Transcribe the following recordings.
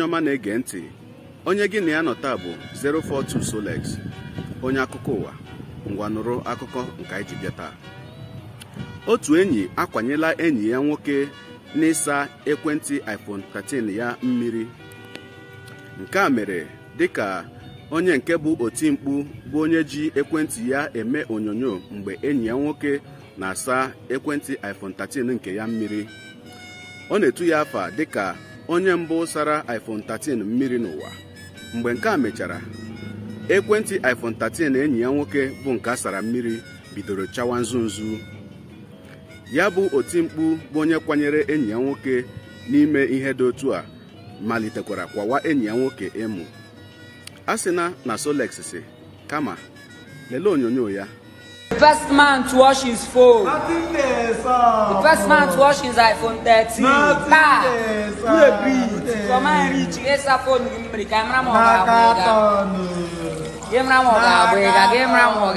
onye ọma na-ege ntị onye gị na ya nọ taa bụ 042 Solex onye akụkọ ụwa ngwa nụrụ akụkọ nke anyị ji bịa taa otu enyi akwanyela enyi ya nwoke n'ịsa ekwentị iPhone 13 ya mmiri nke a mere dịka onye nke bụ oti mkpu bụ onye ji ekwentị ya eme onyonyo mgbe enyi ya nwoke na-asa ekwentị iPhone 13 nke ya mmiri ọ na-etu ya afa dịka onye mbụ sara iPhone 13 mmiri n'ụwa mgbe nke a mechara ekwentị iPhone 13 enyi ya nwoke bụ nke a sara mmiri bidoro chawa nzu ya bụ mkpu bụ onye kwanyere enyi ya nwoke n'ime ihe dị otu a malitekwara kwawa enyi ya nwoke emu a na Solex si kama lelee onyonyo ya The first man to wash his phone. Nothing there, sir. The first man to wash his iPhone 13. Nothing there, sir. Who a bit? For my rich, yes, I phone him. The camera mo ga Camera mo ga bwega. Camera mo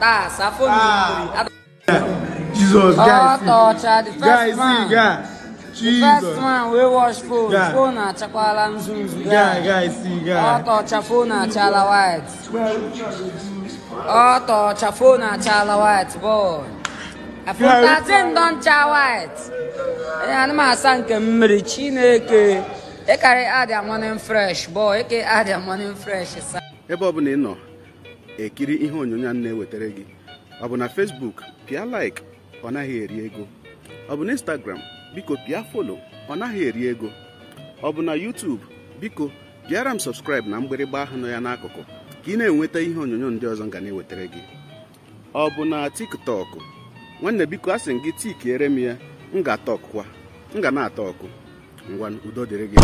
ga phone Jesus, oh, guys. Oh, torture. The first guys, man. Guys, Jesus. The first man we wash phone. Yeah. Phone achakwala mzunzu. Yeah, guys, see, guys. Oh, torture. Phone achala white. Ọtọ chafona chala white boy. Afụtatin don cha white. Onye anụ m asa nke mmiri Chineke. Ịkarị e adịa morning fresh boy. Eke adịa morning fresh e sa. Ebe ọ bụla ị nọ ekiri ihe onyonyo a na-ewetara gị ọ bụ na Facebook pịa like ọ naghị eri ego ọ bụ na Instagram biko pịa follow ọ naghị eri ego ọ bụ na YouTube biko bịara m subscribe na mgbịrịgba ahụ nọ ya n'akụkụ ka ị na-enweta ihe onyonyo ndị ọzọ nga na-ewetara gị ọ bụ na tiktọkụ nwanne biko a sị m gị tikiere m ya m ga na-atọ ọkụ ngwa udo dịrị gị